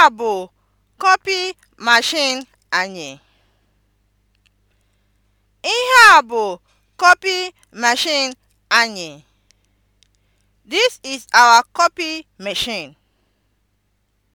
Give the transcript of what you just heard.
Nke a bụ copy machine anyị. Ihe a bụ copy machine anyị. This is our copy machine.